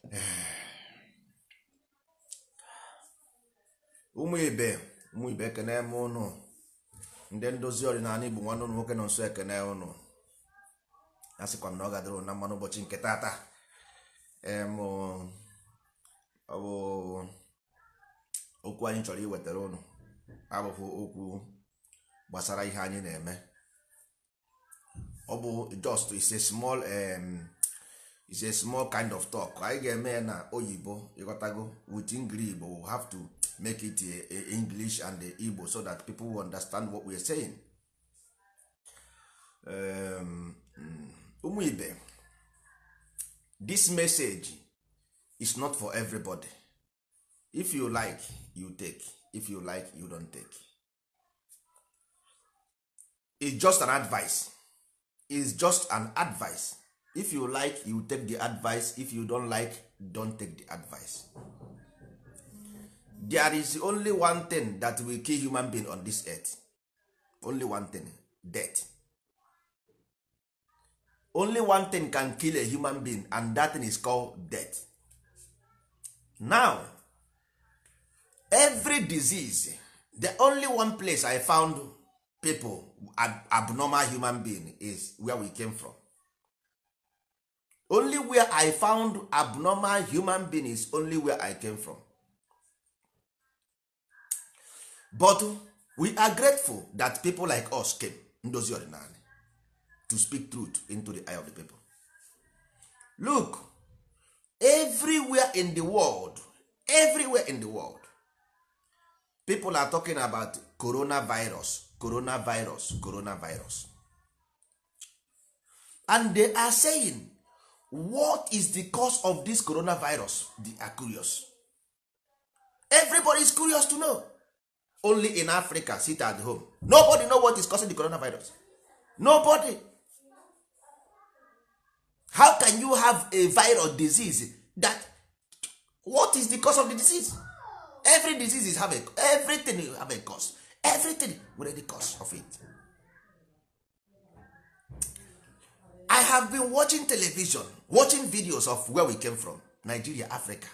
ụmụ ibe ụmụ ibe ekene m ụnụ ndị ndozi ọdịnala igbo nwanne ụnụ nwoke nọ nso ekene ụnụ a sịkwa m na ọ na mmanụ ụbọchị nke tata ọ bụ okwu anyị chọrọ iwetara ụnụ abụghị okwu gbasara ihe anyị na-eme ọ just is a small is a small kind of talk anyị ga-eme na oyibo ịghọtago with english but we have to make it a, a english and a igbo so that people will understand what we are saying um, hmm. ụmụ um, ibe this message is not for everybody if you like you take if you like you don't take it's just an advice it's just an advice if you like you take the advice if you don't like don't take the advice there is only one thing that will kill human being on this earth only one thing death only one thing can kill a human being and that thing is called death now every disease the only one place i found people ab abnormal human being is where we came from only where i found abnormal human beings is only where i came from but we are grateful that people like us came ndozi ọdịnala to speak truth into the eye of the people look everywhere in the world everywhere in the world people are talking about coronavirus coronavirus coronavirus and they are saying what is the cause of this coronavirus they are curious everybody is curious to know only in africa sit at home nobody know what is causing the coronavirus nobody how can you have a viral disease that what is the cause of the disease every disease is have a everything have a cause everything with the cause of it i have been watching television watching videos of where we came from nigeria africa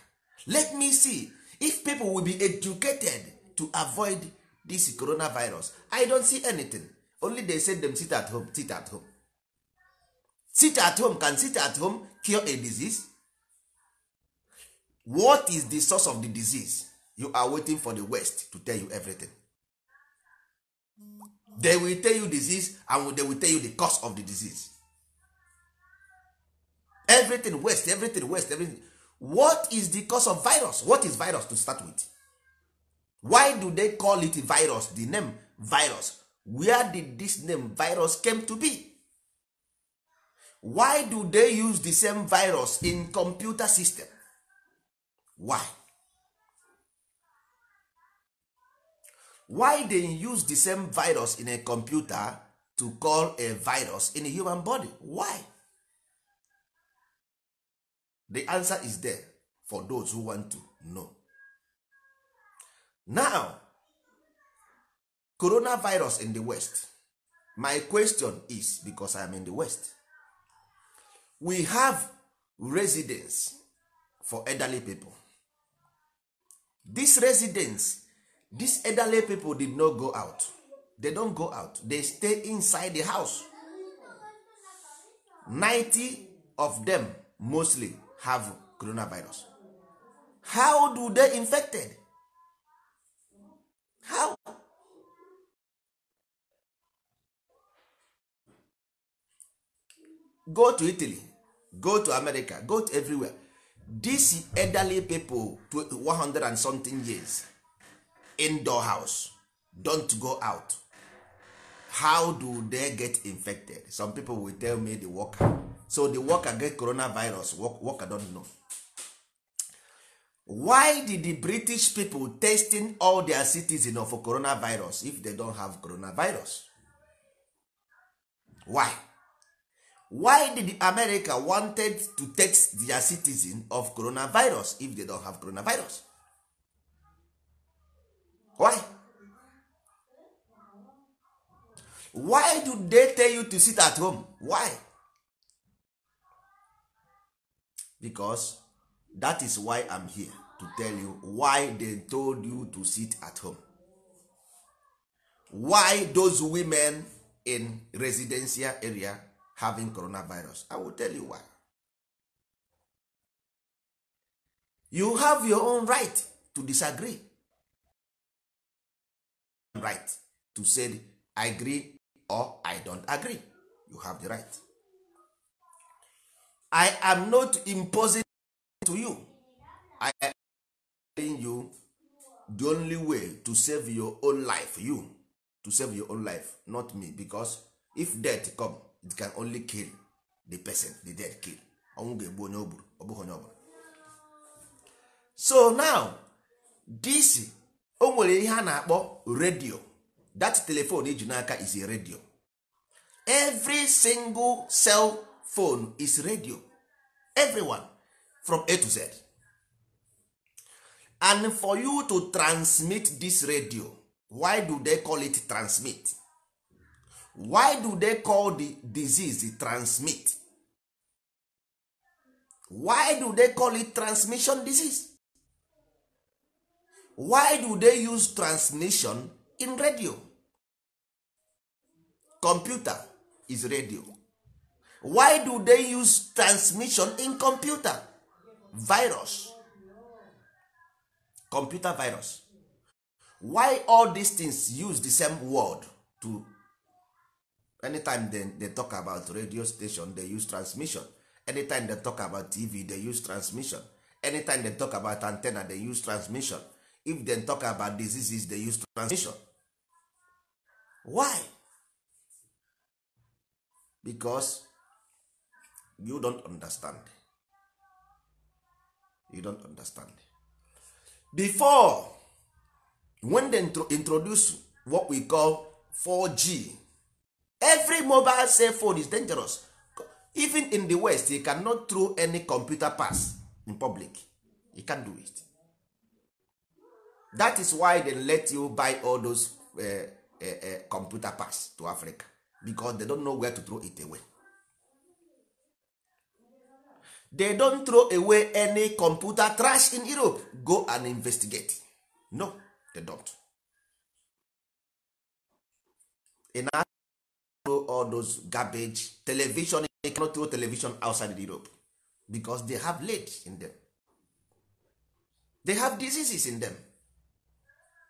let me see if people will be educated to avoid this coronavirus i don't see anything only they said them sit at home sit at home sit at home can sit at home cure a disease what is the source of the disease you are waiting for the west to tell you everything they will tell you disease and they will tell you the cause of the disease everything waste everything waste everything what is the cause of virus what is virus to start with why do they call it virus the name virus where did this name virus came to be why do they use the same virus in computer system why why they use the same virus in a computer to call a virus in a human body why the answer is there for those who want to know now coronavirus in the west my question is because i am in the west we have residence for elderly people this residence these elderly people did not go out they don go out they stay inside the house 90 of them mostly have coronavirus how do they infected how go to italy go to america go to everywhere this elderly people to 100 and something years indoor house don't go out how do they get infected some people will tell me the worker so the worker get coronavirus worker don't know why did the british people testing all their citizens of coronavirus if they don't have coronavirus why why did america wanted to test their citizen of coronavirus if they don't have coronavirus why why do they tell you to sit at home why because that is why I'm here to tell you why they told you to sit at home why those women in residential area having coronavirus I will tell you why you have your own right to disagree right to say I agree or I don't agree you have the right I am not imposing to you. I am telling you the only way to save your own life you to save your own life not me because if death come it can only kill the person the dead kill ọnwụ ga-egbu onye o onye ọbụla so now this o nwere ihe a na-akpọ radio that telephone iji n'aka is a radio every single cell phone is radio everyone from a to z and for you to transmit this radio why do they call it transmit why do they call the disease transmit why do they call it transmission disease why do they use transmission in radio computer is radio why do they use transmission in computer virus computer virus why all these things use the same word to anytime they, they talk about radio station they use transmission anytime they talk about tv they use transmission anytime they talk about antenna they use transmission if they talk about diseases they use transmission why? because you don't understand you don't understand before when they introduce what we call 4g every mobile cell phone is dangerous even in the west you cannot throw any computer pass in public you can't do it that is why they let you buy all those uh, uh, uh, computer pass to africa because they don't know where to throw it away they don't throw away any computer trash in europe go and investigate no they don't in all those garbage television they cannot throw television outside europe because they have late in them they have diseases in them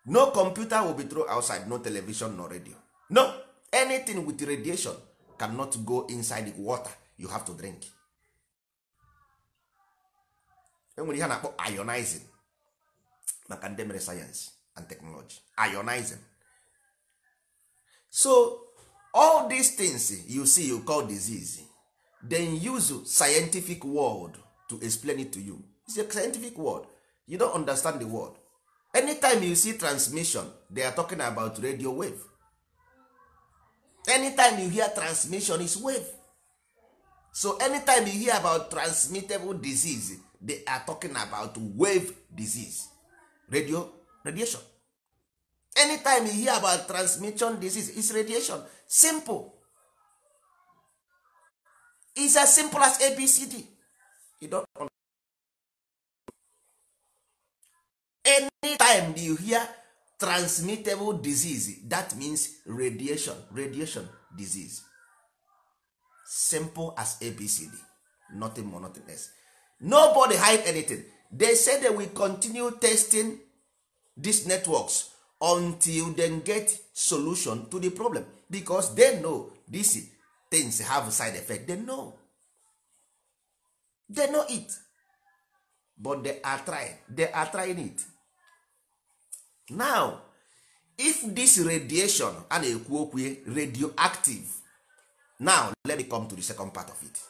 no computer will be throw outside no television no radio no anything with radiation cannot go inside the water you have to drink enwere ihe a na-akpọ ionizing maka ndị mere sayensị and teknọlọji ionizing so all these things eh, you see you call disease eh, then use scientific word to explain it to you it's a scientific word you don't understand the word anytime you see transmission they are talking about radio wave anytime you hear transmission is wave so anytime you hear about transmittable disease they are talking about wave disease radio radiation anytime you hear about transmission disease is radiation simple is as simple as abcd you don't anytime you hear transmittable disease that means radiation radiation disease simple as abcd nothing more nothing less nobody hide anything they say they will continue testing these networks until they get solution to the problem because they know these things have side effect they know they know it but they are trying they are trying it now if this radiation a na-ekwu okwu eh, radioactive now let me come to the second part of it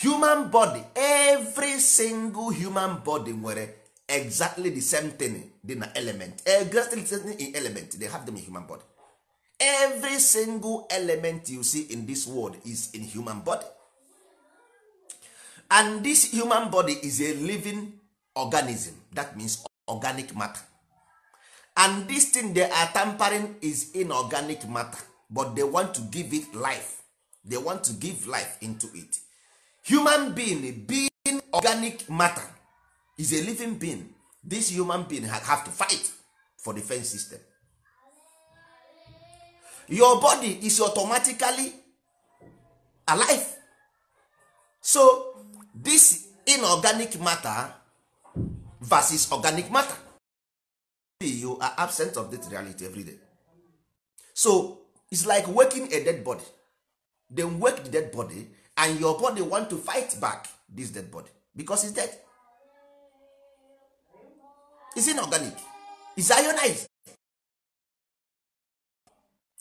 human body every single human body nwere exactly the same thing dị na element exactly the same thing in element they have them in human body every single element you see in this world is in human body and this human body is a living organism that means organic matter and this thing they are tampering is inorganic matter but they want to give it life they want to give life into it human being being organic matter is a living being this human being have to fight for defense system your body is automatically alive so this inorganic matter versus organic matter you are absent of that reality every day so it's like waking a dead body then wake the dead body and your body want to fight back this dead body because it's dead is organic is ionized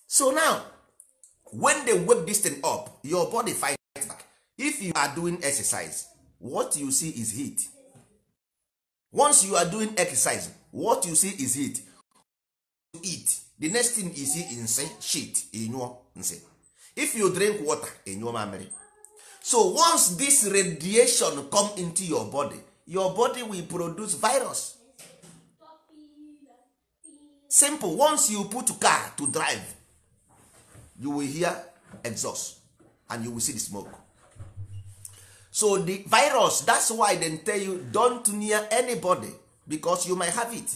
so now when they wake this thing up your body fight back if you are doing exercise what you see is heat once you are doing exercise what you see is heat you eat the next thing you see is shit inyụọ if you drink water inyụọ so once this radiation come into your body your body will produce virus simple once you put car to drive you will hear exhaust and you will see the smoke so the virus that's why dem tell you don't near anybody because you might have it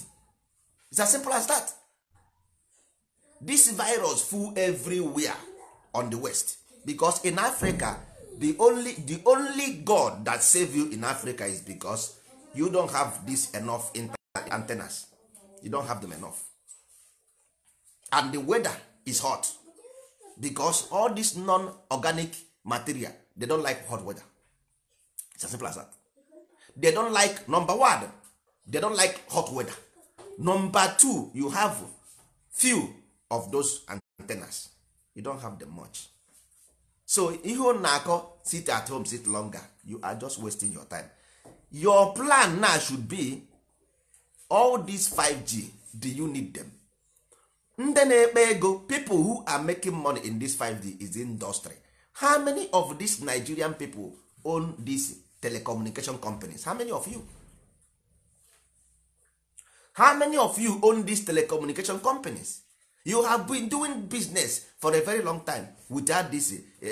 it's as simple as that this virus full everywhere on the west because in africa the only the only god that save you in africa is because you don have this enough antennas you don have them enough and the weather is hot because all this non-organic material they don like hot weather it's as simple as that they don like number one they don like hot weather number two you have few of those antennas you don have them much so ihe ọ na-akọ sit at home sit longer you are just wasting your time your plan now should be all these 5g do you need them ndị na-ekpe ego people who are making money in this 5g is industry how many of these nigerian people own these telecommunication companies how many of you how many of you own these telecommunication companies you have been doing business for a very long time without this uh,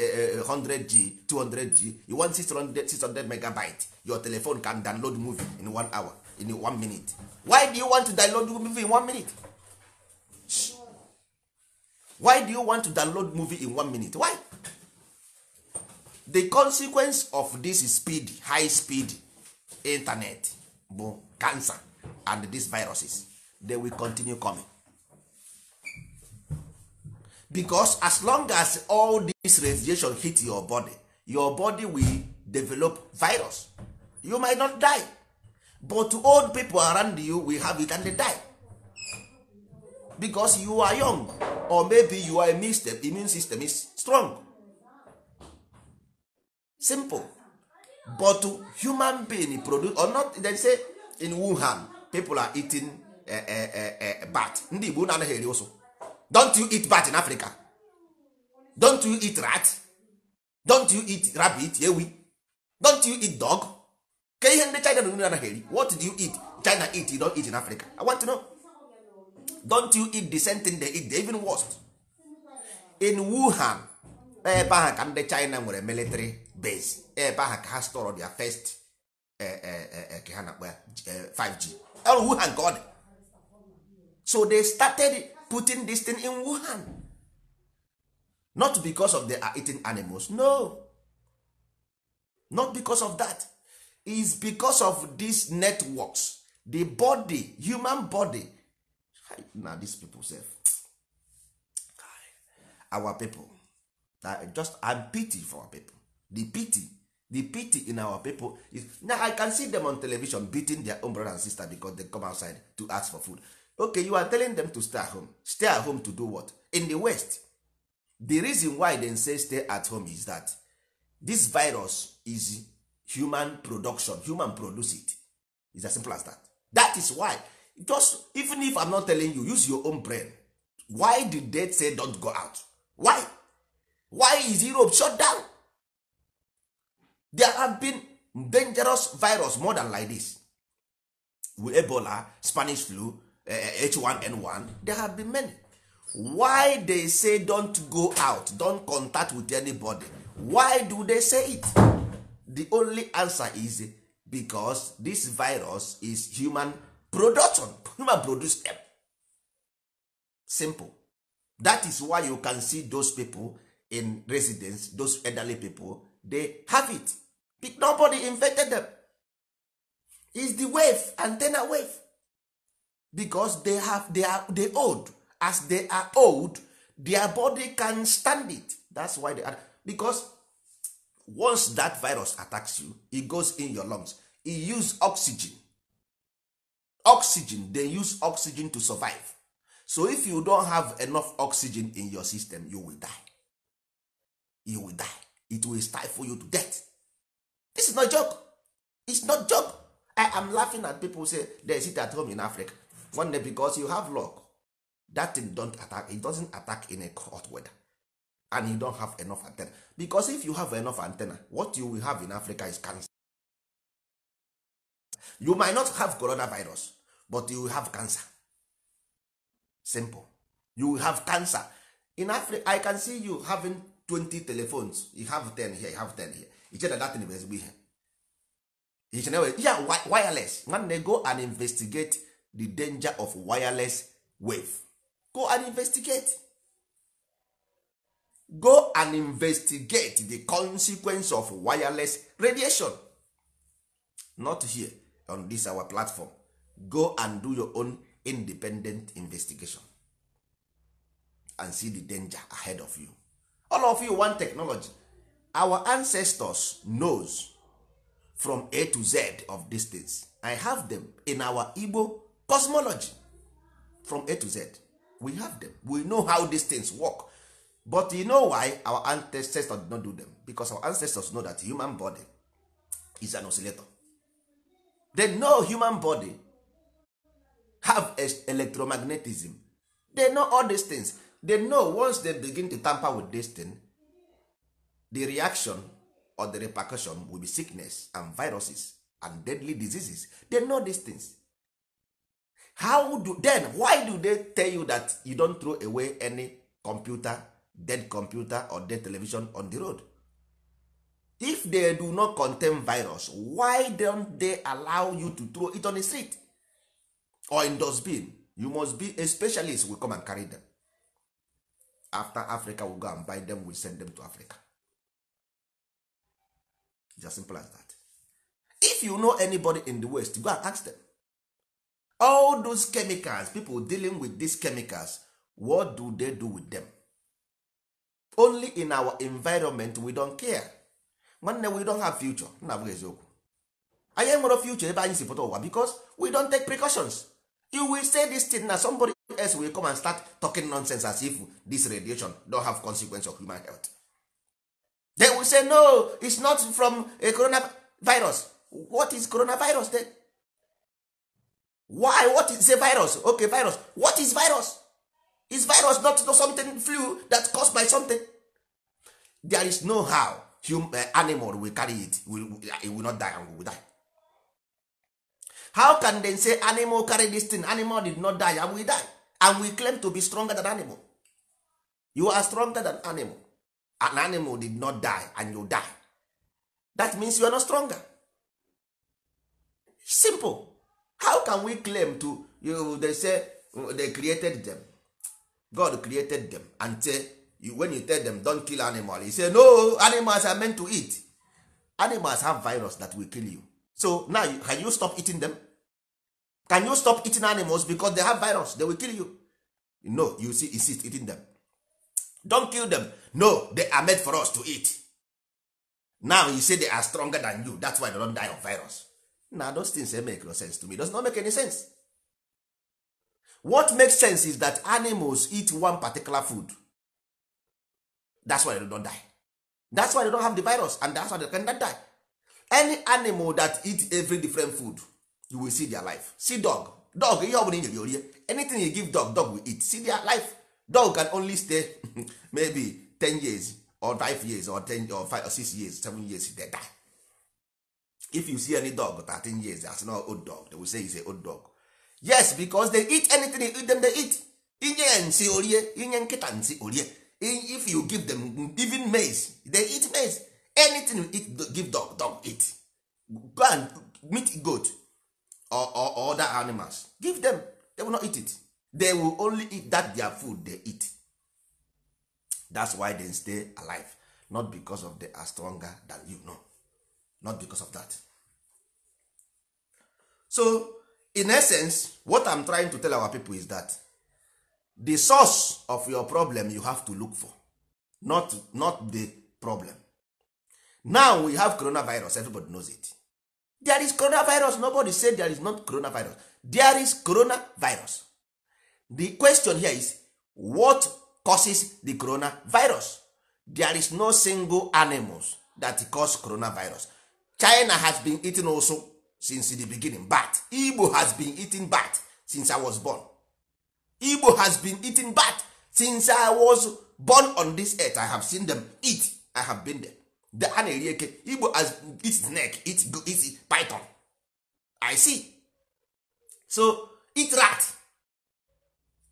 100g 200g you want 600, 600 megabyte your telephone can download movie in one hour in one minute why do you want to download movie in one minute why do you want to download movie in one minute why the consequence of this speed high speed internet bụ cancer and these viruses they will continue coming because as long as all this radiation hit your body your body will develop virus you might not die but old people around you will have it and they die because you are young or maybe you are immune system, immune system is strong simple but human being produce or not they say in wuhan people are eating uh, uh, uh, bat ndị igbo na anaghị eri ụsụ don't you eat bat in africa don't you eat rat don't you eat rabbit ewi don't you eat dog ka ihe ndị china na anaghị eri what do you eat china eat you don't eat in africa i want to know don't you eat the same thing they eat they even worst in wuhan ebe ahụ ka ndị china nwere military base ebe ahụ ka ha store their first eh, eh, eh, ka ha na-akpọ ya 5g wuhan ka ọ dị so they started putting this thing in wuhan not because of they are eating animals no not because of that is because of these networks the body human body na these people sef our people I just i'm pity for our people the pity the pity in our people is now i can see them on television beating their own brother and sister because they come outside to ask for food okay you are telling them to stay at home stay at home to do what in the west the reason why they say stay at home is that this virus is human production human produce it is as simple as that that is why just even if i'm not telling you use your own brain why the dead say don't go out why why is europe shut down there have been dangerous virus more than like this with ebola spanish flu H1N1 eh, there have been many why they say don't go out don't contact with anybody why do they say it the only answer is because this virus is human production human produce them simple that is why you can see those people in residence those elderly people they have it nobody infected them is the wave antenna wave because they have they are they old as they are old their body can stand it that's why they are because once that virus attacks you e goes in your lungs e use oxygen oxygen they use oxygen to survive so if you don't have enough oxygen in your system you will die you will die it will stifle you to death this is not joke it's not joke i am laughing at people say there is it at home in africa nwanne because you have luck that thing don't attack it doesn't attack in a hot weather and you don't have enough antenna because if you have enough antenna what you will have in africa is cancer you might not have coronavirus but you will have cancer simple you will have cancer in africa i can see you having 20 telephones you have 10 here you have 10 here iche na datin bụ ezigbo ihe iche na wireless nwanne go and investigate the danger of wireless wave go and investigate go and investigate the consequence of wireless radiation not here on this our platform go and do your own independent investigation and see the danger ahead of you all of you want technology our ancestors knows from a to z of these i have them in our igbo cosmology from a to z we have them we know how these things work but you know why our ancestors did not do them because our ancestors know that human body is an oscillator they know human body have electromagnetism they know all these things they know once they begin to tamper with this thing the reaction or the repercussion will be sickness and viruses and deadly diseases they know these things how do then why do they tell you that you don't throw away any computer dead computer or dead television on the road if they do not contain virus why don't they allow you to throw it on the street or in dustbin you must be a specialist we come and carry them after africa we go and buy them we send them to africa just simple as that if you know anybody in the west go and ask them all those chemicals people dealing with these chemicals what do they do with them only in our environment we don't care nwanne we don't have future nna abụghị eziokwu anyị enwere future ebe anyị si pụta ụwa because we don take precautions you will say this thing na somebody else will come and start talking nonsense as if this radiation don't have consequence of human health they will say no it's not from a coronavirus what is coronavirus then why what is a virus okay virus what is virus is virus not something flu that caused by something there is no how human uh, eh, animal will carry it will, eh, it will not die and will die how can they say animal carry this thing animal did not die and we die and we claim to be stronger than animal you are stronger than animal an animal did not die and you die that means you are not stronger simple how can we claim to you they say they created them god created them and say you, when you tell them don kill animal he say no animals are meant to eat animals have virus that will kill you so now can you stop eating them can you stop eating animals because they have virus they will kill you no you see insist eating them don kill them no they are made for us to eat now you say they are stronger than you that's why they don die of virus na those things make no sense to me it does not make any sense what makes sense is that animals eat one particular food that's why they don't die that's why they don't have the virus and that's why they cannot die any animal that eat every different food you will see their life see dog dog ihe ọbụla inyere orie anything you give dog dog will eat see their life dog can only stay maybe 10 years or 5 years or 10 or 5 or 6 years 7 years they die if you see any dog 13 years as no oh, old dog they will say he's a old dog yes because they eat anything them they eat inye nsi orie inye nkịta nsi orie if you give them even maize they eat maize anything you eat give dog dog eat go and meat goat or, or, or other animals give them they will not eat it they will only eat that their food they eat that's why they stay alive not because of they are stronger than you know not because of that so in essence what i'm trying to tell our people is that the source of your problem you have to look for not not the problem now we have coronavirus everybody knows it there is coronavirus nobody said there is not coronavirus there is coronavirus the question here is what causes the coronavirus there is no single animals that cause coronavirus china has been eating also since the beginning but igbo has been eating bat since i was born igbo has been eating bat since i was born on this earth i have seen them eat i have been there the a na-eri eke igbo has eat snake eat, eat python i see so eat rat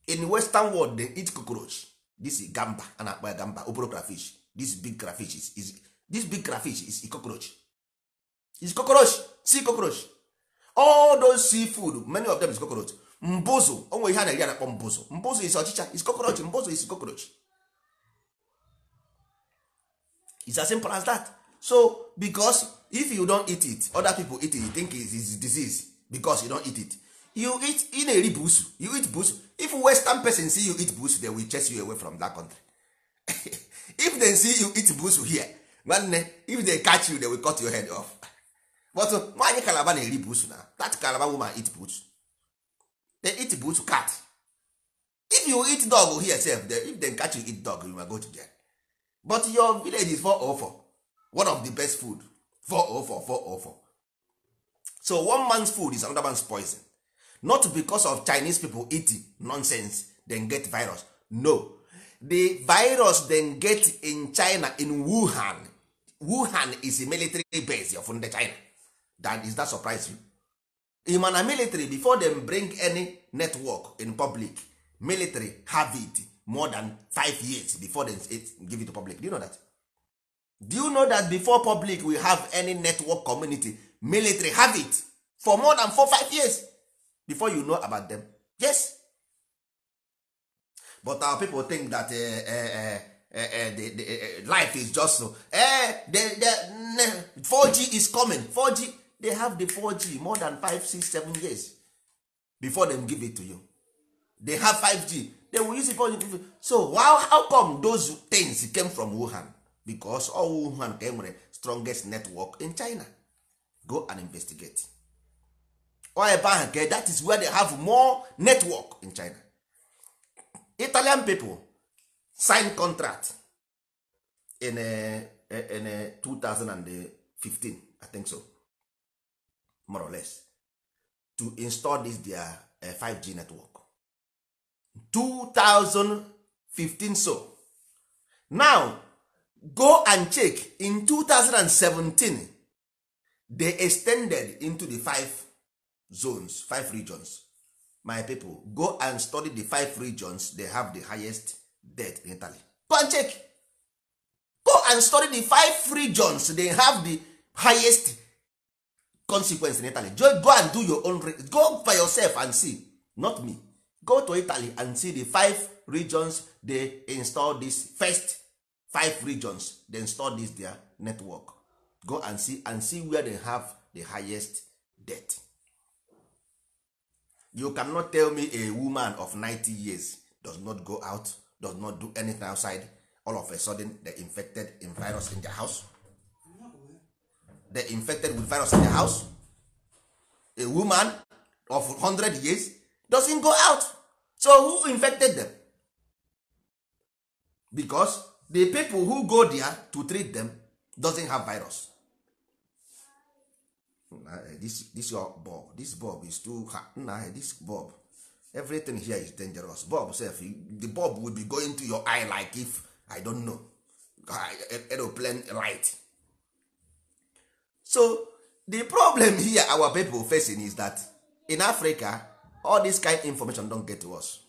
in western world they eat cockroach this is gamba a na-akpọ ya gamba oboro crayfish this big crayfish is, is, this big crayfish is a cockroach is cockroach see cockroach all those sea food many of them is cockroach mbụzụ onwe ihe a na-eri anakpọ mbụzụ mbụzụ is ọchịcha is cockroach mbụzụ is cockroach it's as simple as that so because if you don't eat it other people eat it you think it is disease because you don't eat it you eat ị na-eri busu you eat busu if western person see you eat busu they will chase you away from that country if they see you eat busu here nwanne if they catch you they will cut your head off but nwaanyị kalaba na-eri buusu na that kalaba woman eat buusu they eat buusu cat if you eat dog here sef if dem catch you eat dog you ma go to jail but your village is 404 one of the best food 404 404 so one man's food is another man's poison not because of chinese people eat nonsense dem get virus no the virus dem get in china in wuhan wuhan is a military base of ndị china that is that surprise you Imana military before them bring any network in public military have it more than five years before them give it to public do you know that do you know that before public we have any network community military have it for more than four five years before you know about them yes but our people think that uh, uh, uh, the, the, eh, life is just so 4G eh, is coming 4G they have the 4g more than 5 6 7 years before them give it to you they have 5g they will use it for you. so how, how come those things came from wuhan because all wuhan ka enwere strongest network in china go and investigate or ebe ahụ ka that is where they have more network in china italian people sign contract in, uh, in uh, 2015 i think so more or less to install this their uh, eh, 5g network 2015 so now go and check in 2017 they extended into the five zones five regions my people go and study the five regions they have the highest death in italy go and check go and study the five regions they have the highest consequence in italy go and do your own go by yourself and see not me go to italy and see the five regions they install this first five regions they install this their network go and see and see where they have the highest debt you cannot tell me a woman of 90 years does not go out does not do anything outside all of a sudden they infected in virus in their house they infected with virus in their house a woman of 100 years doesn't go out so who infected them because the people who go there to treat them doesn't have virus eh, this this your bulb this bulb is too hard. Nah, eh, this bulb everything here is dangerous bulb sef the bulb will be going to your eye like if i don't know aeroplane light so the problem here our people facing is that in africa all this kind information don get to us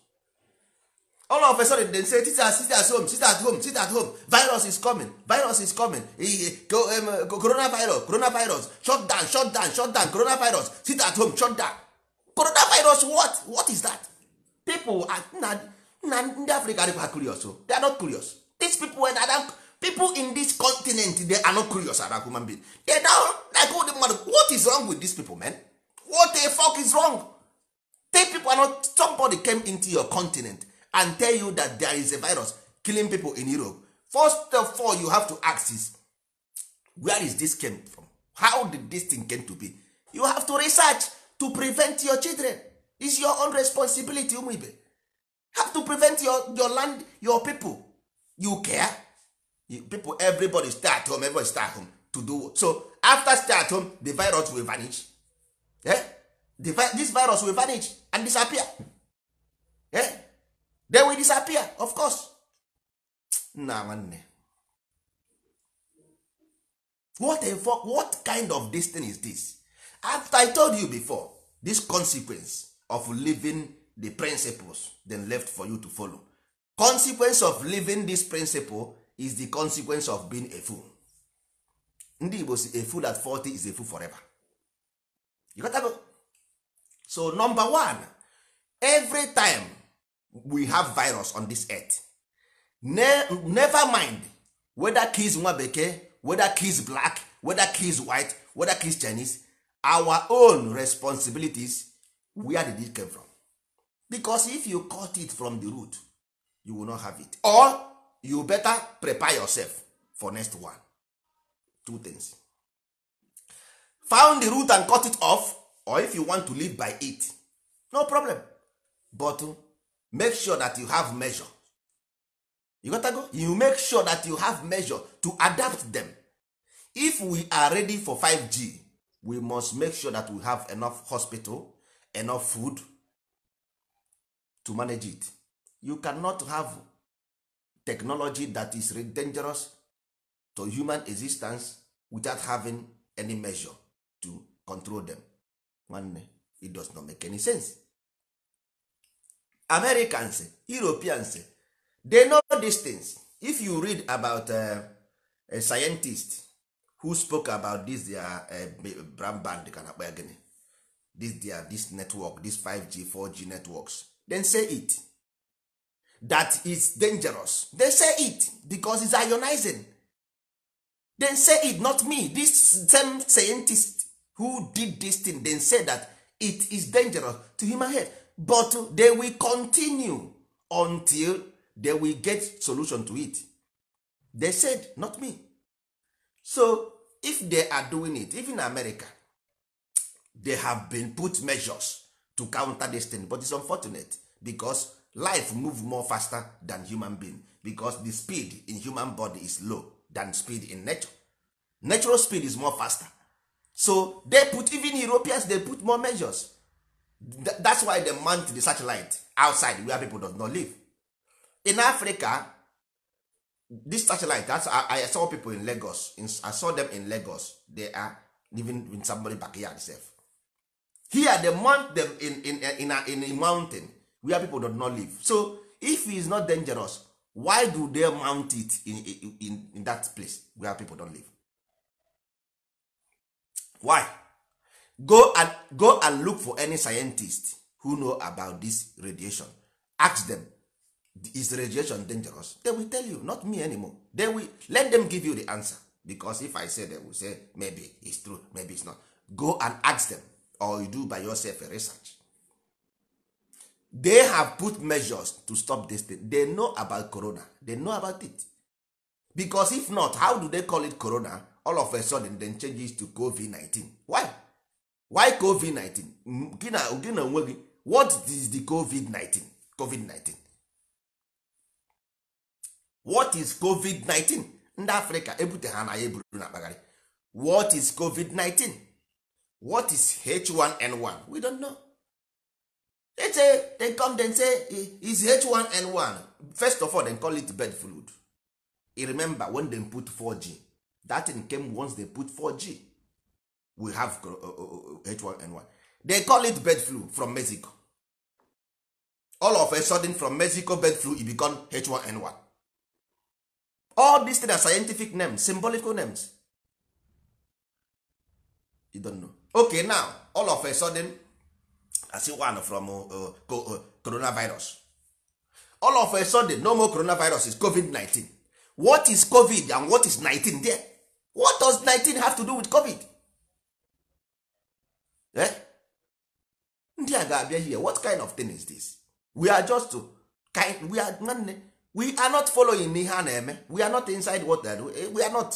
all of a sudden dem say sit at, sit at home sit at home sit at home virus is coming virus is coming um, coronavirus coronavirus shut down shut down shut down coronavirus sit at home shut down coronavirus what what is that people are na ndị africa are curious o oh. they are not curious these people are eh, not people in this continent they are not curious about human being they don't like all the mmadụ what is wrong with these people men what the fuck is wrong take people are not somebody came into your continent and tell you that there is a virus killing people in europe first of all you have to ask is where is this came from how did this thing came to be you have to research to prevent your children is your own responsibility ụmụ ibe have to prevent your, your land your people you care people everybody stay at home everybody stay at home to do so after stay at home the virus will vanish eh? the vi this virus will vanish and disappear eh? they will disappear of course nna nwanne what a fuck, what kind of dis tin is this after i told you before this consequence of living the principles then left for you to follow consequence of living this principle is the consequence of being a fool ndị Igbo si a fool at 40 is a fool forever you got that. go so number one every time we have virus on this earth ne never mind whether kids nwa bekee whether kids black whether kids white whether kids Chinese our own responsibilities where did it come from because if you cut it from the root you will not have it or you better prepare yourself for next one two things found the root and cut it off or if you want to live by it no problem but make sure that you have measure you gotta go you make sure that you have measure to adapt them if we are ready for 5g we must make sure that we have enough hospital enough food to manage it you cannot have technology that is dangerous to human existence without having any measure to control them nwanne it does not make any sense americans europeans they know these things if you read about uh, a scientist who spoke about this their uh, brand band ka na akpa this their this network this 5g 4g networks then say it that is dangerous they say it because it's ionizing They say it not me this same scientist who did this thing they say that it is dangerous to human health but they will continue until they will get solution to it they said not me so if they are doing it even america they have been put measures to counter this thing but it's unfortunate because life move more faster than human being because the speed in human body is low than speed in nature natural speed is more faster so they put even europeans they put more measures that's why they mount the satellite outside where people does not live in africa this satellite that's I, I saw people in lagos i saw them in lagos they are living in somebody backyard sef here they mount them in, in, in, in, a, in a mountain where people do not live so if he is not dangerous why do they mount it in, in, in that place where people don live why go and go and look for any scientist who know about this radiation ask them is radiation dangerous they will tell you not me anymore they will let them give you the answer because if i say they will say maybe it's true maybe it's not go and ask them or you do by yourself a research they have put measures to stop this thing they know about corona they know about it because if not how do they call it corona all of a sudden then changes to covid-19 why why covid-19 gina na onwe gị what is the covid-19 covid-19 what is covid-19 ndị africa ebute ha na ya eburu na akpagharị what is covid-19 what is h1n1 we don't know. they say they come then say is h1n1 first of all they call it bird flu you remember when they put 4g that thing came once they put 4g we have h1n1 uh, uh, uh, they call it bird flu from mexico all of a sudden from mexico bird flu e become h1n1 all these things are scientific names symbolical names you don't know okay now all of a sudden asị one from uh, uh, uh, coronavirus all of a sudden no more coronavirus is covid-19 what is covid and what is 19 there what does 19 have to do with covid eh? ndị a ga-abịa here what kind of thing is this we are just kind, we are nwanne we are not following ihe a na-eme we are not inside what they do eh, we are not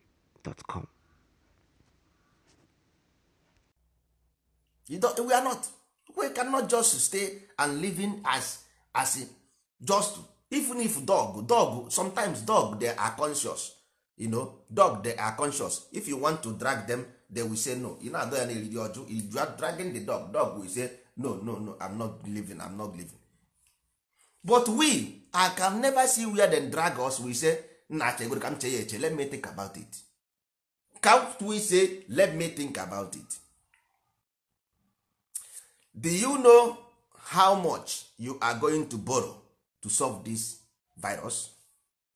gmail.com. You don't, we are not. We cannot just stay and living as as just even if dog dog sometimes dog they are conscious you know dog they are conscious if you want to drag them they will say no you know adọ ya na eriri ọjụ you are dragging the dog dog will say no no no i'm not living i'm not living but we i can never see where they drag us we say nna chegoro ka m chee ya eche let me think about it count we say let me think about it do you know how much you are going to borrow to solve this virus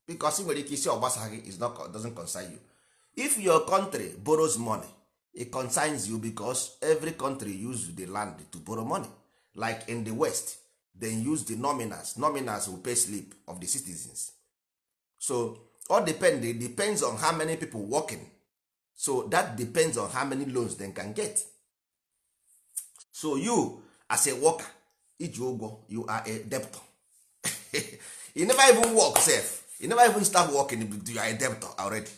because nwere ike isi ọgbasa gị is not doesn't concern you if your country borrows money it concerns you because every country use the land to borrow money like in the west they use the nominals nominals will pay sleep of the citizens so all depend depends on how many people working so that depends on how many loans they can get so you as a worker iji ụgwọ you are a debtor you never even work sef you never even start working you are a debtor already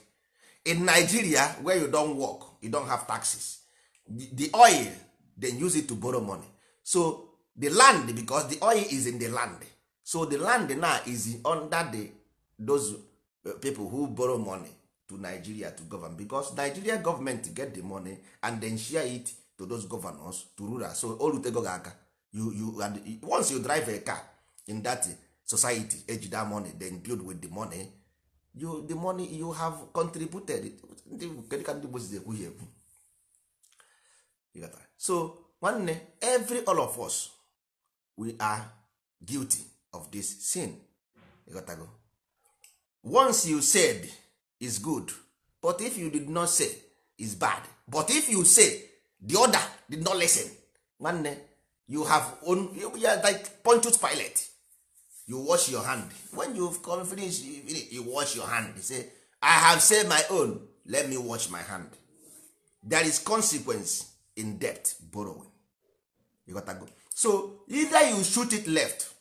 in nigeria where you don work you don have taxes the oil then use it to borrow money so the land because the oil is in the land so the land now is under the those uh, people who borrow money to nigeria to govern because nigeria government get the money and then share it to those governors to rural so o rutego gị aka and once you drive a car in that society age that money then build with the money you, the money you have contributed kedu ka ndị gbozi ekwu ekwu so nwanne every all of us we are guilty of this sin once you said is good but if you did not say is bad but if you say the other did not listen nwanne you have own you are like punctured pilot you wash your hand when you come finish you, wash your hand you say I have said my own let me wash my hand there is consequence in debt borrowing you got go so either you shoot it left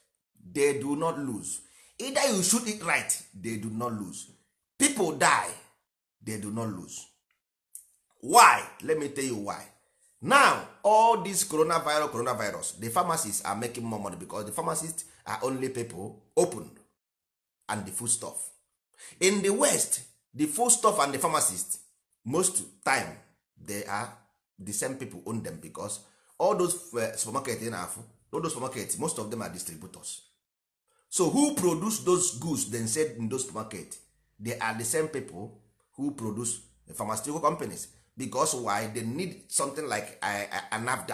they do not lose either you shoot it right they do not lose people die they do not lose why let me tell you why now all this coronavirus coronavirus the pharmacists are making more money because the pharmacist are only people open and the food stuff in the west the food stuff and the pharmacist most time they are the same people own them because all those eh, supermarket in afụ all those supermarket most of them are distributors so who produce those goods then sell in those supermarket they are the same people who produce the pharmaceutical companies because why they need something like an a,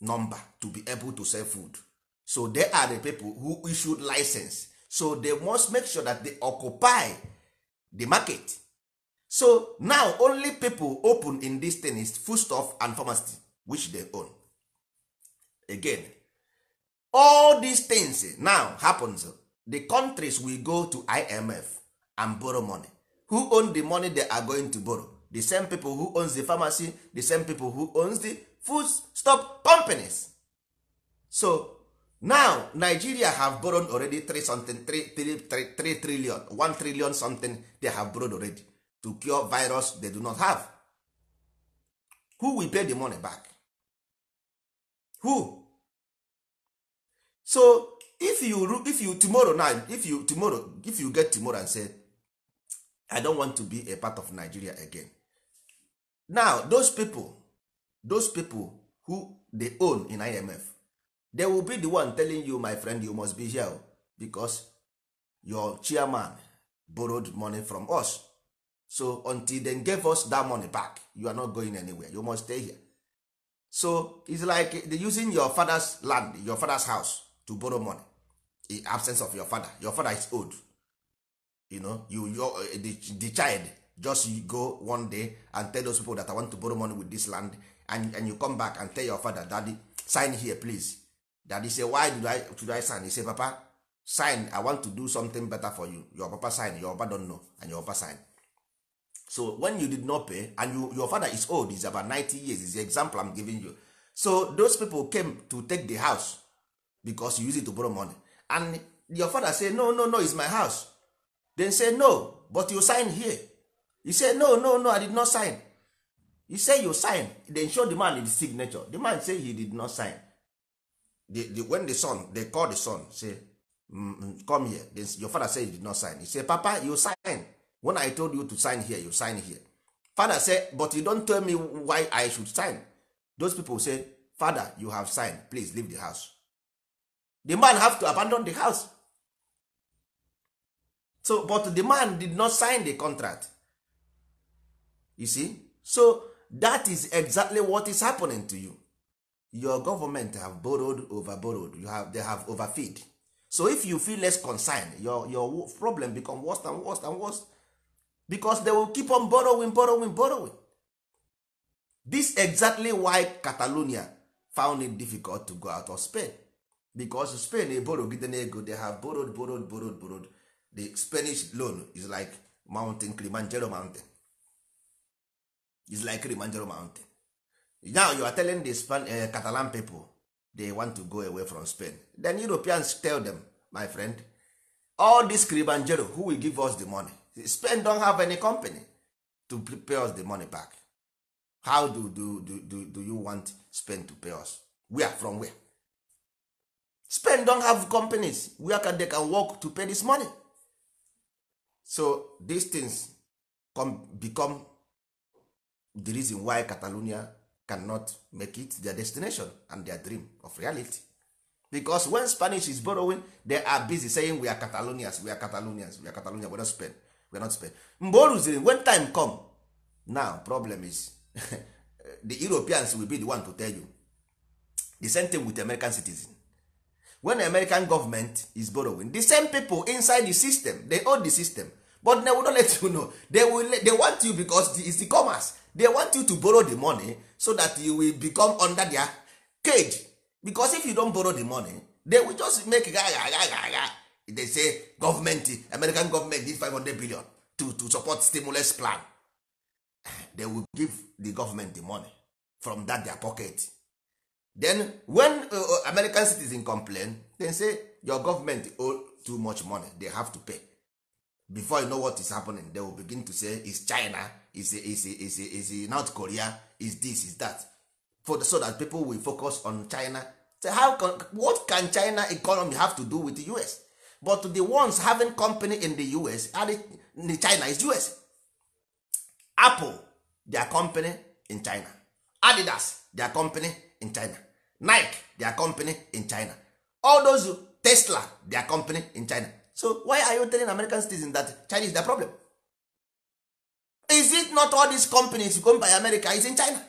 number to be able to sell food so they are the people who issued license so they must make sure that they occupy the market so now only people open in this thing is foodstuff and pharmacy which they own again all these things now happens the countries we go to imf and borrow money who own the money they are going to borrow the same people who owns the pharmacy the same people who owns the food stop companies so now nigeria have borrowed already 3 something 3, three three trillion 1 trillion something they have borrowed already to cure virus they do not have who will pay the money back who so if you if you tomorrow now if you tomorrow if you get tomorrow and say i don't want to be a part of nigeria again now those people those people who dey own in imf they will be the one telling you my friend you must be here because your chairman borrowed money from us so until they gave us that money back you are not going anywhere you must stay here so it's like using your father's land your father's house to borrow money in absence of your father your father is old you know you, you eh, the, the child just go one day and tell those people that i want to borrow money with this land and, and you come back and tell your father daddy sign here please daddy say why do i, should I sign he say papa sign i want to do something better for you your papa sign your papa don't know and your papa sign so when you did not pay and you, your father is old is about 90 years is the example i'm giving you so those people came to take the house because you use it to borrow money and your father say no no no it's my house dem say no but you sign here e say no no no i did not sign e say you sign dem show the man his signature the man say he did not sign the, the, when the son they call the son say mm, mm come here they, your father say he did not sign he say papa you sign when i told you to sign here you sign here father say but you don't tell me why i should sign those people say father you have signed please leave the house the man have to abandon the house so but the man did not sign the contract you see so that is exactly what is happening to you your government have borrowed over borrowed you have, they have overfeed so if you feel less concerned your, your problem become worse and worse and worse because they will keep on borrowing borrowing borrowing this exactly why catalonia found it difficult to go out of spain because spain borrow na ego they have borrowed borrowed borrowed borrowed the spanish loan is like mountain kilimanjaro mountain is like kilimanjaro mountain now you are telling the Span uh, catalan people they want to go away from spain then europeans tell them my friend all this kilimanjaro who will give us the money spain don have any company to pay us the money back how do, do, do, do, do you want spain to pay us where from where spain don have companies where can they can work to pay this money so these things come, become the reason why Catalonia cannot make it their destination and their dream of reality because when Spanish is borrowing they are busy saying we are Catalonians we are Catalonians we are catalonians we are not Spain we are not Spain mgbe o rụziri when time come now problem is the Europeans will be the one to tell you the same thing with American citizens when american government is borrowing the same people inside the system they own the system but they will not let you know they will they want you because it's the commerce they want you to borrow the money so that you will become under their cage because if you don't borrow the money they will just make gaga they say government american government need 500 billion to, to support stimulus plan they will give the government the money from that their pocket then when uh, uh, american citizen complain dem say your government owe too much money they have to pay before you know what is happening they will begin to say is china is is is is north korea is this is that for the, so that people will focus on china so how can, what can china economy have to do with the us but the ones having company in the us are the china is us apple their company in china adidas their company in china nike their company in china all those tesla their company in china so why are you telling american citizens that china is their problem is it not all these companies come by america is in china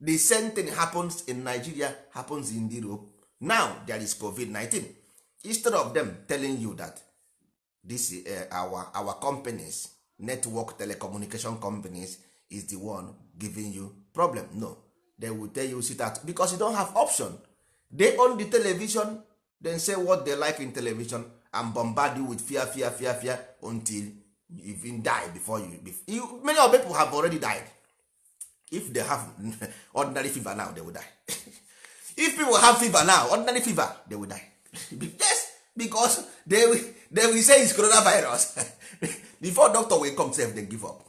the same thing happens in nigeria happens in europe now there is covid-19 instead of them telling you that this uh, our our companies network telecommunication companies is the one giving you problem no they will tell you sit at because you don't have option they own the television then say what they like in television and bombard you with fear fear fear fear until you even die before you, you many of people have already died if they have ordinary fever now they will die if people have fever now ordinary fever they will die yes because they will, they will say it's coronavirus before doctor will come sef they give up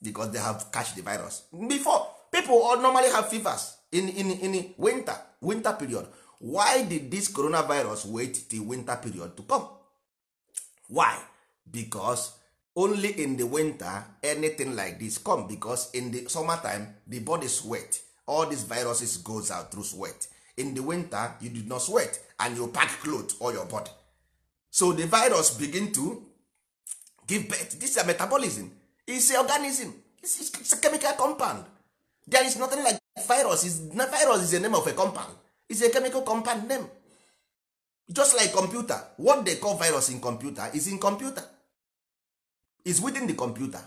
because they have catch the virus before people normally have fevers in, in, in winter winter period why did this coronavirus wait till winter period to come why Because only in the winter anything like this come because in the time the body sweat all these viruses goes out through sweat in the winter you did not sweat and you pack cloth or your body so the virus begin to give birth this is a metabolism It's a organism it's, it's a chemical compound there is nothing like virus is virus is a name of a compound is a chemical compound name just like computer what they call virus in computer is in computer is within the computer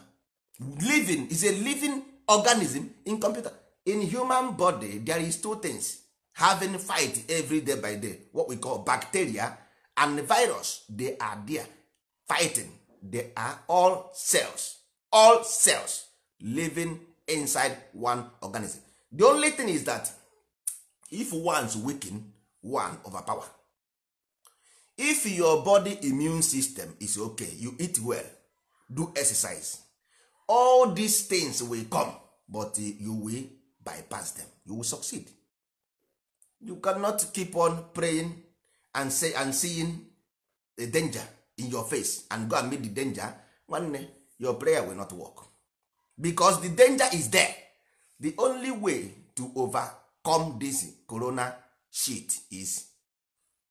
living is a living organism in computer in human body there is two things having fight every day by day what we call bacteria and virus they are there fighting they are all cells all cells living inside one organism the only thing is that if one's weaken one overpower if your body immune system is okay you eat well do exercise all these things will come but eh, you will bypass them you will succeed you cannot keep on praying and say and seeing the danger in your face and go and meet the danger nwanne your prayer will not work because the danger is there the only way to overcome this corona shit is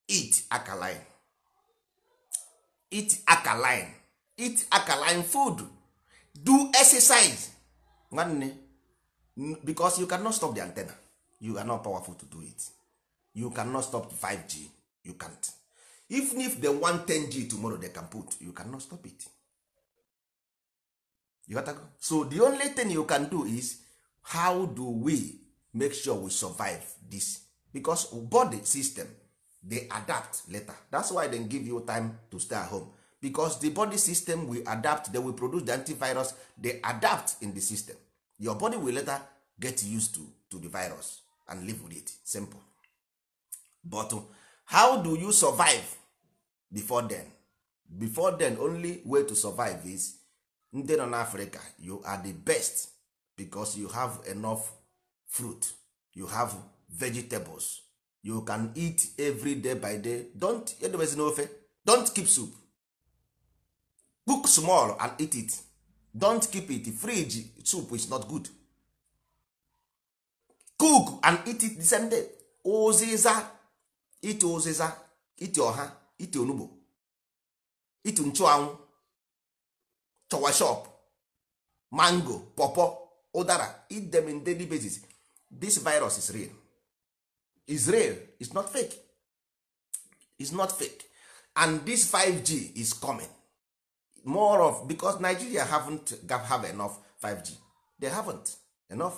eat alkaline eat alkaline eat alkaline food do exercise nwanne because you cannot stop the antenna you are not powerful to do it you cannot stop 5g you can't even if they want 10g tomorrow they can put you cannot stop it you got so the only thing you can do is how do we make sure we survive this because body system dey adapt later that's why dem give you time to stay at home because the body system will adapt they will produce the antivirus they adapt in the system your body will later get used to to the virus and live with it simple but uh, how do you survive before then before then only way to survive is ndị nọ n'afrịka you are the best because you have enough fruit you have vegetables you can eat every day by day don't edobezi n'ofe don't keep soup cook small and eat it don't keep it fridge soup is not good cook and eat it the same day ụzịza ite ụzịza ite ọha ite onugbo ite nchụanwụ chọwashọp mango popo ụdara eat them in daily basis this virus is real is real is not fake is not fake and this 5g is coming more of because nigeria haven't have enough 5g they haven't enough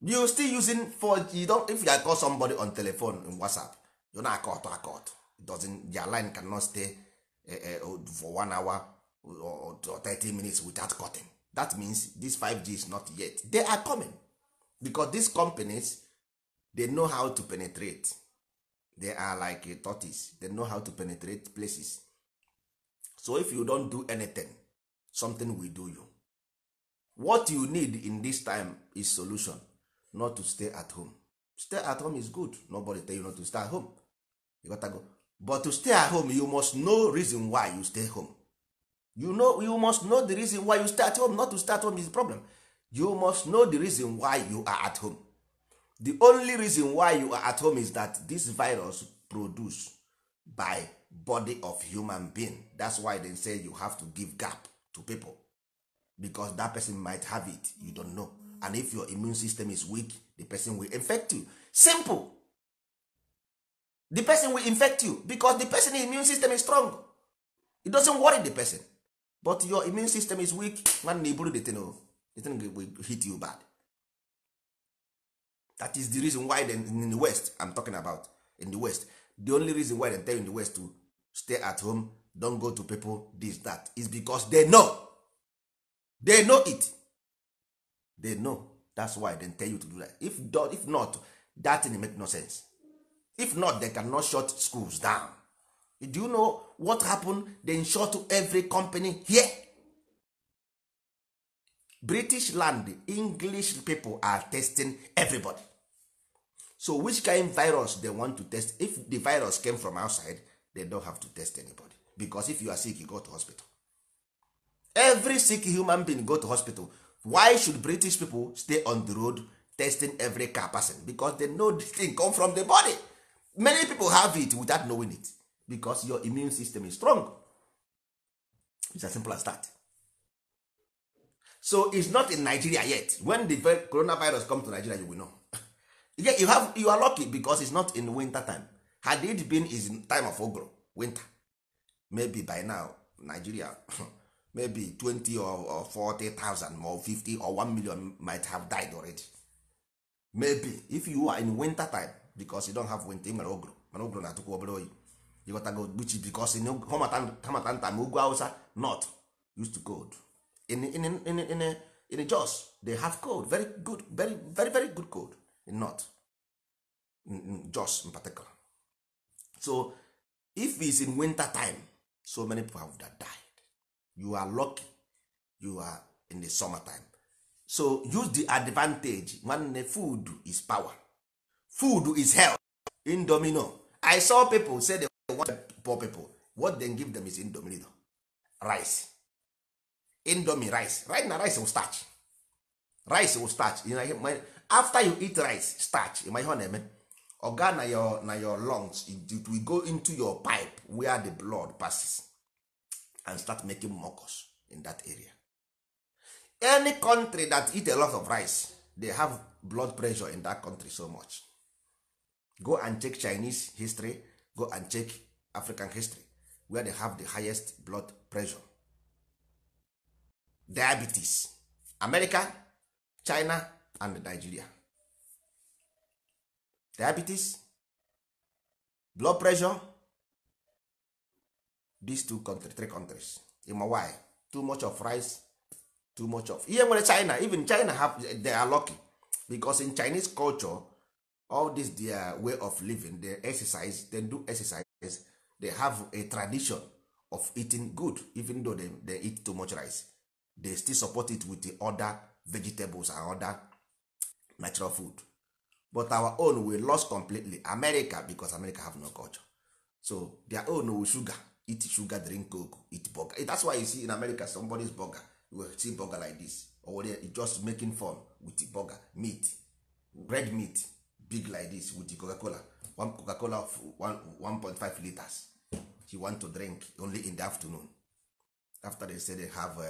you still using 4g you don't, if you call somebody on telephone in whatsapp you na akọ ọtọ it doesn't their line cannot stay Eh, eh, oh, for one hour or thirty minutes without cutting that means this 5g is not yet they are coming because these companies they know how to penetrate they are like a eh, tortoise they know how to penetrate places so if you don't do anything something will do you what you need in this time is solution not to stay at home stay at home is good nobody tell you not to stay at home you gotta go but to stay at home you must know reason why you stay home you know you must know the reason why you stay at home not to stay at home is the problem you must know the reason why you are at home the only reason why you are at home is that this virus produced by body of human being that's why they say you have to give gap to people because that person might have it you don't know and if your immune system is weak the person will infect you simple the person will infect you because the person immune system is strong it doesn't worry the person but your immune system is weak nwanne iburu the thing oh, the thing will hit you bad that is the reason why then in the west i'm talking about in the west the only reason why they tell you in the west to stay at home don go to people this that is because they know they know it they know that's why they tell you to do that if, if not that thing make no sense if not they cannot shut schools down do you know what happened? they shut every company here british land english people are testing everybody so which kind virus they want to test if the virus came from outside they don't have to test anybody because if you are sick you go to hospital every sick human being go to hospital why should british people stay on the road testing every car person because they know the thing come from the body many people have it without knowing it because your immune system is strong it's as simple as that so it's not in nigeria yet when the coronavirus come to nigeria you will know you have you are lucky because it's not in winter time had it been is time of ogro winter maybe by now nigeria maybe 20 or, or 40,000 or 50 or 1 million might have died already maybe if you are in winter time because you don't have winter mere ogro mana ogro na-atụkwa obere oyi ịghọtago gbuchi because hamata nta ma ugwu hausa not used to cold in, in, in, in, in Jos they have cold very good very very very good cold in north in, Jos in particular so if is in winter time so many people have that died you are lucky you are in the summer time so use the advantage nwanne food is power food is health domino i saw people say they want poor people what they give them is indomino rice indomie rice right na rice will starch rice will starch you know, after you eat rice starch you my ọ na-eme na your na your lungs it will go into your pipe where the blood passes and start making mucus in that area any country that eat a lot of rice they have blood pressure in that country so much go and check chinese history go and check african history where they have the highest blood pressure diabetes america china and nigeria diabetes blood pressure these two country, three countries in why too much of rice too much of ihe nwere china even china have they are lucky because in chinese culture all this their way of living they exercise they do exercise they have a tradition of eating good even though they, they eat too much rice they still support it with the other vegetables and other natural food but our own we lost completely america because america have no culture so their own we sugar eat sugar drink coke eat burger eh, that's why you see in america somebody's burger you will see burger like this or just making fun with the burger meat red meat big like this with coca cola one coca cola of 1.5 liters she want to drink only in the afternoon after they say they have uh,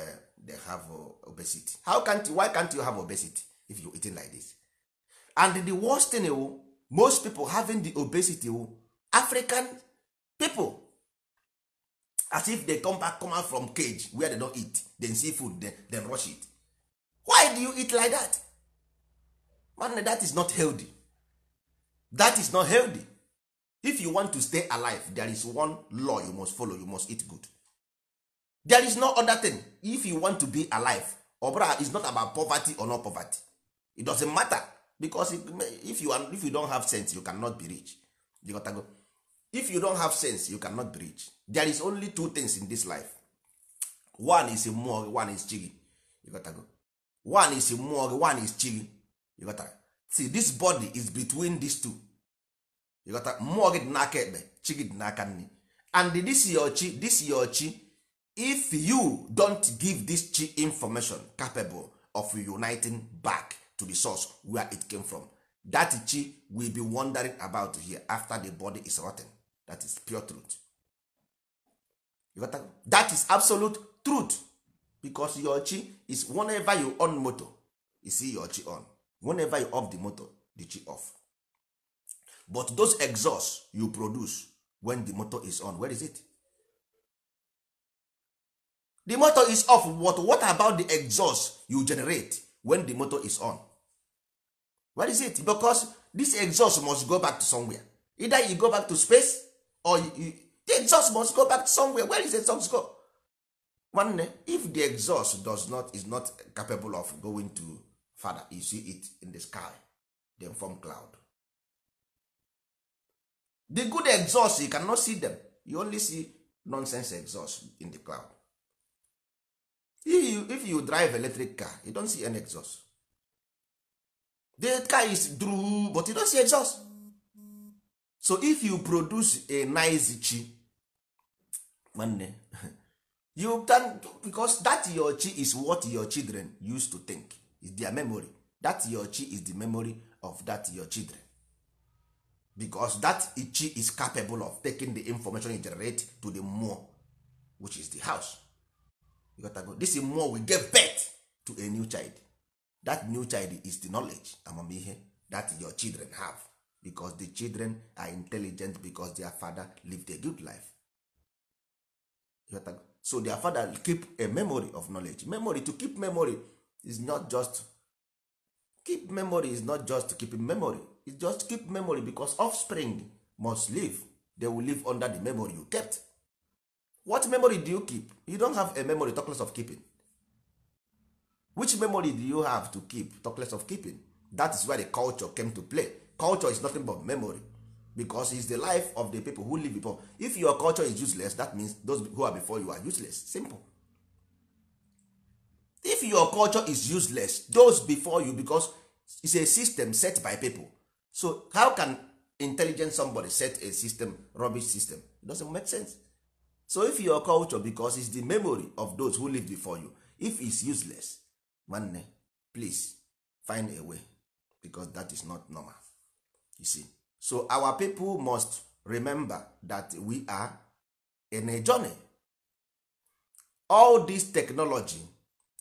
they have uh, obesity how can't you, why can't you have obesity if you eating like this and the worst thing uh, most people having the obesity uh, african people as if they come back come out from cage where they don't eat then see food then, then rush it why do you eat like that man that is not healthy that is not healthy if you want to stay alive there is one law you must follow you must eat good there is no other thing if you want to be alive obra is not about poverty or not poverty it doesn't matter because if you, are, if you don't have sense you cannot be rich you gotta go. if you don't have sense you cannot be rich there is only two things in this life one is mmụọ one is chi gị one is mmụọ one is got gị see this body is between these two you got mmụọ gị dị n'aka ekpe chi gị dị n'aka nne and this your chi this your chi if you don't give this chi information capable of uniting back to the source where it came from that chi will be wondering about here after the body is rotten that is pure truth you got that is absolute truth because your chi is whenever you on moto you see your chi on whenever you off the motor the chi off but those exhaust you produce when the motor is on where is it the motor is off what what about the exhaust you generate when the motor is on where is it because this exhaust must go back to somewhere either you go back to space or you, the exhaust must go back to somewhere where is the exhaust go nwanne eh, if the exhaust does not is not capable of going to father you see it in the sky dem form cloud the good exhaust you cannot see them you only see nonsense exhaust in the cloud if you, if you drive electric car you don see any exhaust the car is through but you don see exhaust so if you produce a nice chi nwanne you can because that your chi is what your children used to think is their memory that your chi is the memory of that your children because that chi is capable of taking the information you generate to the moor which is the house this moor will give birth to a new child that new child is the knowledge amamihe that your children have because the children are intelligent because their father lived a good life so their father keep a memory of knowledge memory to keep memory is not just keep memory is not just keeping memory is just keep memory because offspring must live they will live under the memory you kept what memory do you keep you don't have a memory tockless of keeping which memory do you have to keep tockless of keeping that is where the culture came to play culture is nothing but memory because is the life of the people who live before if your culture is useless that means those who are before you are useless simple if your culture is useless those before you because it's a system set by people so how can intelligent somebody set a system rubbish system it doesn't make sense so if your culture because it's the memory of those who live before you if it's useless nwanne please find a way because that is not normal you see so our people must remember that we are in a journey all this technology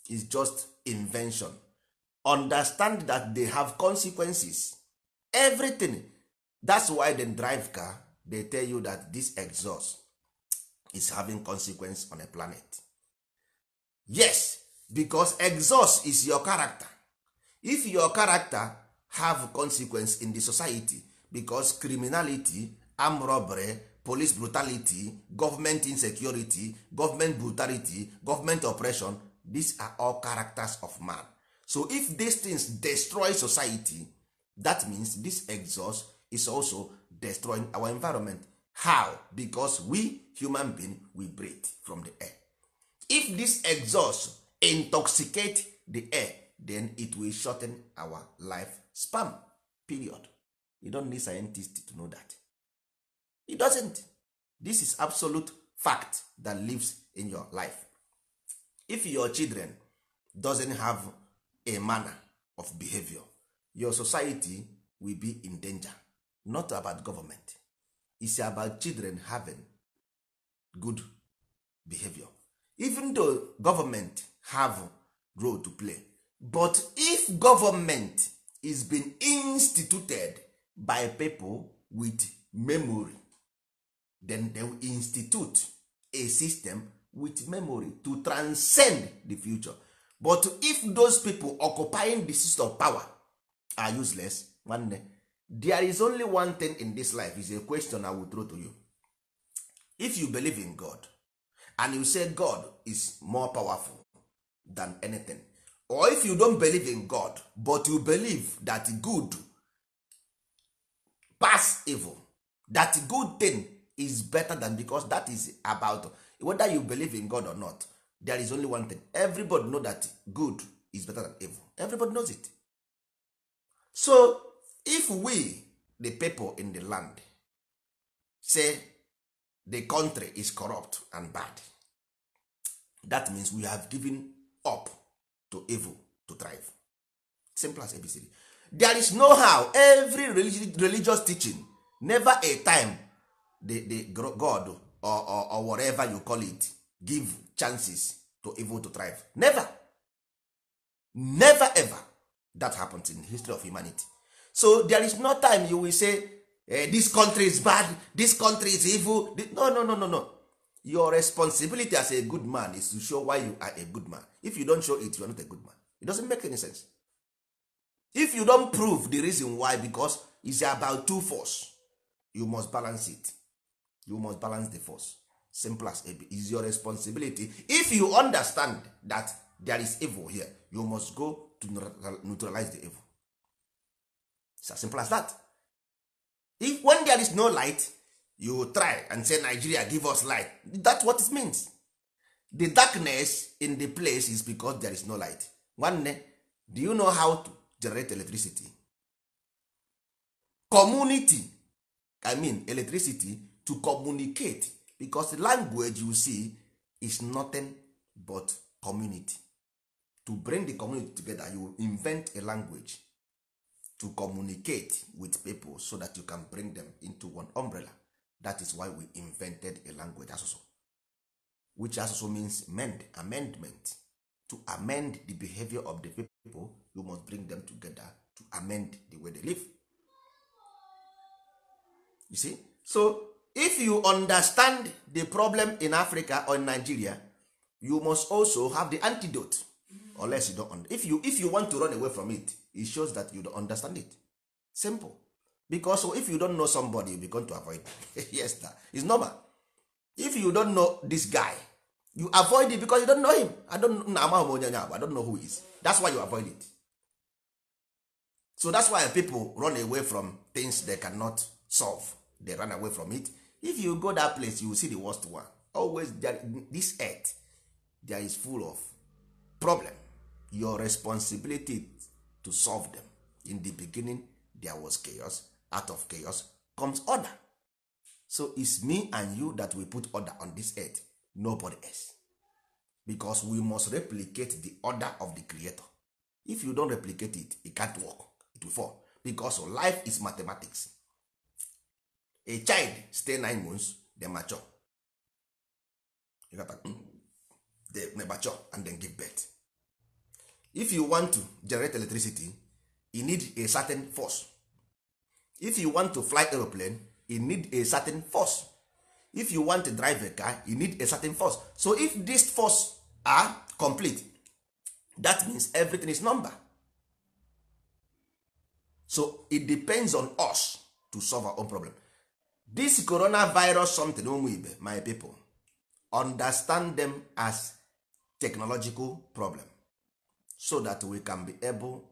is just invention understand that they have consequences everything that's why they drive car they tell you that this exhaust is having consequence on a planet yes because exhaust is your character if your character have consequence in the society because criminality armed robbery police brutality government insecurity government brutality government oppression these are all characters of man so if these things destroy society that means this exhaust is also destroying our environment how because we human being we breathe from the air if this exhaust intoxicate the air then it will shorten our life span period you don't need scientists to know that it doesn't this is absolute fact that lives in your life if your children doesn't have a manner of behavior your society will be in danger not about government is about children having good behavior even though government have role to play but if government is being instituted by people with memory then they will institute a system with memory to transcend the future but if those people occupying the seat of power are useless nwanne there is only one thing in this life is a question i will throw to you if you believe in god and you say god is more powerful than anything or if you don't believe in god but you believe that good pass evil that good thing is better than because that is about whether you believe in god or not there is only one thing everybody know that good is better than evil everybody knows it so if we the people in the land say the country is corrupt and bad that means we have given up to evil to thrive simple as abcd there is no how every religious teaching never a time the, the god or, or, whatever you call it give chances to evil to thrive never never ever that happens in the history of humanity so there is no time you will say eh, this country is bad this country is evil no no no no no your responsibility as a good man is to show why you are a good man if you don't show it you are not a good man it doesn't make any sense if you don't prove the reason why because it's about two force you must balance it you must balance the force simple as it is your responsibility if you understand that there is evil here you must go to neutralize the evil it's as simple as that if when there is no light you try and say nigeria give us light that's what it means the darkness in the place is because there is no light nwanne do you know how to generate electricity community i mean electricity to communicate because language you see is nothing but community to bring the community together you invent a language to communicate with people so that you can bring them into one umbrella that is why we invented a language asụsụ which asụsụ means mend, amendment to amend the behavior of the people you must bring them together to amend the way they live you see so if you understand the problem in africa or in nigeria you must also have the antidote unless you don't if you if you want to run away from it it shows that you don't understand it simple because oh, if you don't know somebody you begin to avoid yes that is normal if you don't know this guy you avoid it because you don't know him i don't na amahom onye onye i don't know who he is that's why you avoid it so that's why people run away from things they cannot solve they run away from it if you go that place you will see the worst one always there, this earth there is full of problem your responsibility to solve them in the beginning there was chaos out of chaos comes order so is me and you that we put order on this earth nobody else because we must replicate the order of the creator if you don replicate it it can't work it will fall because life is mathematics a child stay nine months then mature hmm? they mature and then give birth if you want to generate electricity you need a certain force if you want to fly aeroplane you need a certain force if you want to drive a car you need a certain force so if these force are complete that means everything is number so it depends on us to solve our own problem this coronavirus something ụmụ my people understand them as technological problem so that we can be able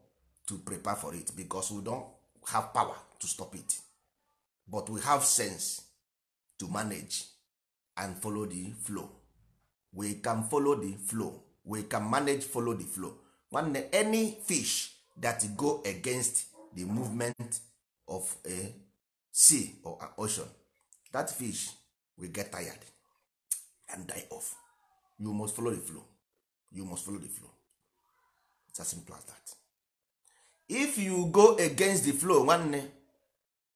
to prepare for it because we don't have power to stop it but we have sense to manage and follow the flow we can follow the flow we can manage follow the flow any fish that go against the movement of a sea or an ocean that fish will get tired and die off you must follow the flow you must follow the flow it's as simple as that if you go against the flow nwanne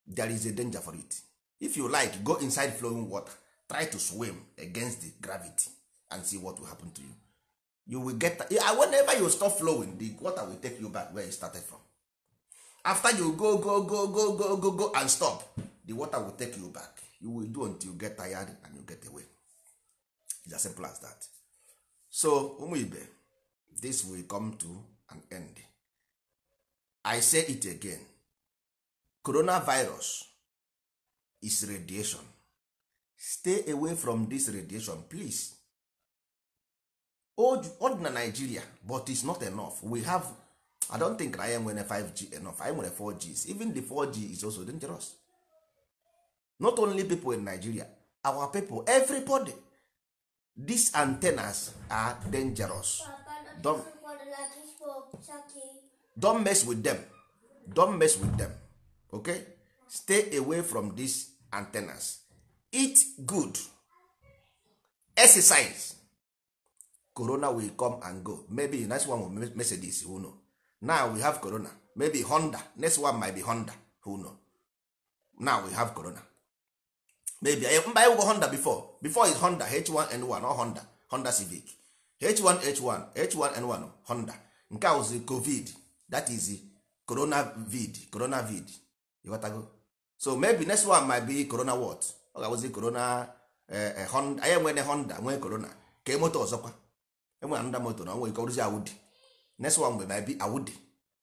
there is a danger for it if you like go inside flowing water try to swim against the gravity and see what will happen to you you will get whenever you stop flowing the water will take you back where you started from after you go go go go go go go and stop the water will take you back you will do until you get tired and you get away It's as simple as that so ụmụ ibe this will come to an end i say it again coronavirus is radiation stay away from this radiation please old, old na nigeria but it's not enough we have i don't think na anyị nwere 5g enough anyị nwere 4 g eh, even the 4g is also dangerous not only people in nigeria our people everybody these antennas are dangerous don't, don't mess with them don't mess with them okay stay away from these antennas eat good exercise corona will come and go maybe the next one will message this who know now we have corona maybe honda next one might be honda who know now we have corona maybe eh, mba ewugo honda before before is honda h1n1 or honda honda civic h1h1 h1n1 honda nke a wụzi covid that is corona vid corona vid ịghọtago so maybe next one might be corona what ọ ga-awụzi corona eh, eh, honda anyị enwere honda nwee corona ka moto ọzọkwa enwere nda moto na onwe ike ọrụzi awụdi. next one will be awudi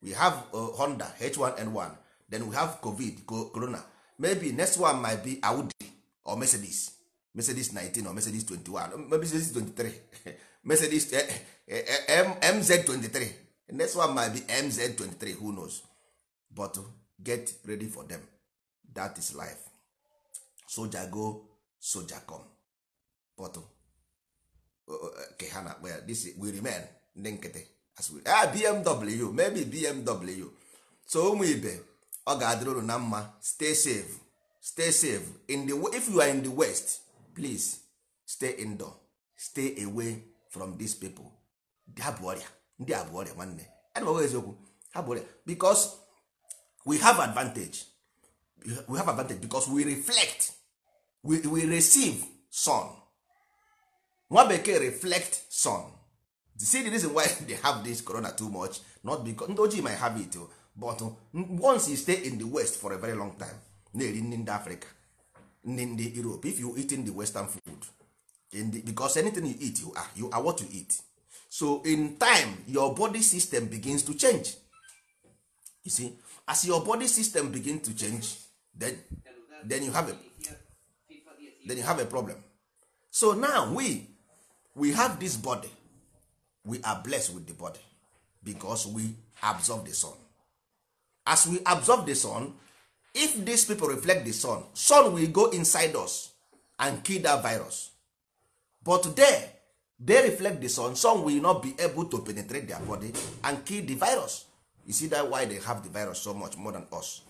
we have uh, honda h1n1 then we have covid corona maybe next one might be audi or mercedes mercedes 19 or mercedes 21 uh, maybe mercedes 23 mercedes eh, eh, eh, eh mz 23 next one might be mz 23 who knows but get ready for them that is life soja go soja come but uh, uh, ke ha well this we remain ndị nkịtị Ah, bmw maybe bmw so ụmụ ibe ọ ga-adịrị na mma stay safe stay safe in the if you are in the west please stay indoor stay away from these people ndị abụọrịa ọrịa ndị abụọrịa bụ ọrịa nwanne anụmanụ eziokwu ha bụ ọrịa because we have advantage we have advantage because we reflect we, we receive sun nwa bekee reflect sun see the reason why they have this corona too much not because ndị ojii might have it but uh, once you stay in the west for a very long time na-eri nri ndị africa nri ndị europe if you eating the western food in the, because anything you eat you are, you are what you eat so in time your body system begins to change you see as your body system begin to change then, then you have a then you have a problem so now we we have this body we are blessed with the body because we absorb the sun as we absorb the sun if these people reflect the sun sun will go inside us and kill that virus but there they reflect the sun sun will not be able to penetrate their body and kill the virus you see that why they have the virus so much more than us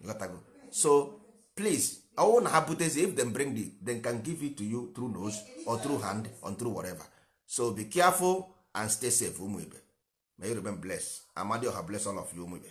you got go. so please ọwụ na ha if them bring the, they can give it to you through nose or through hand or through whatever so be careful and stay safe ụmụ ibe may you remain blessed amadi oha bless all of you ụmụ ibe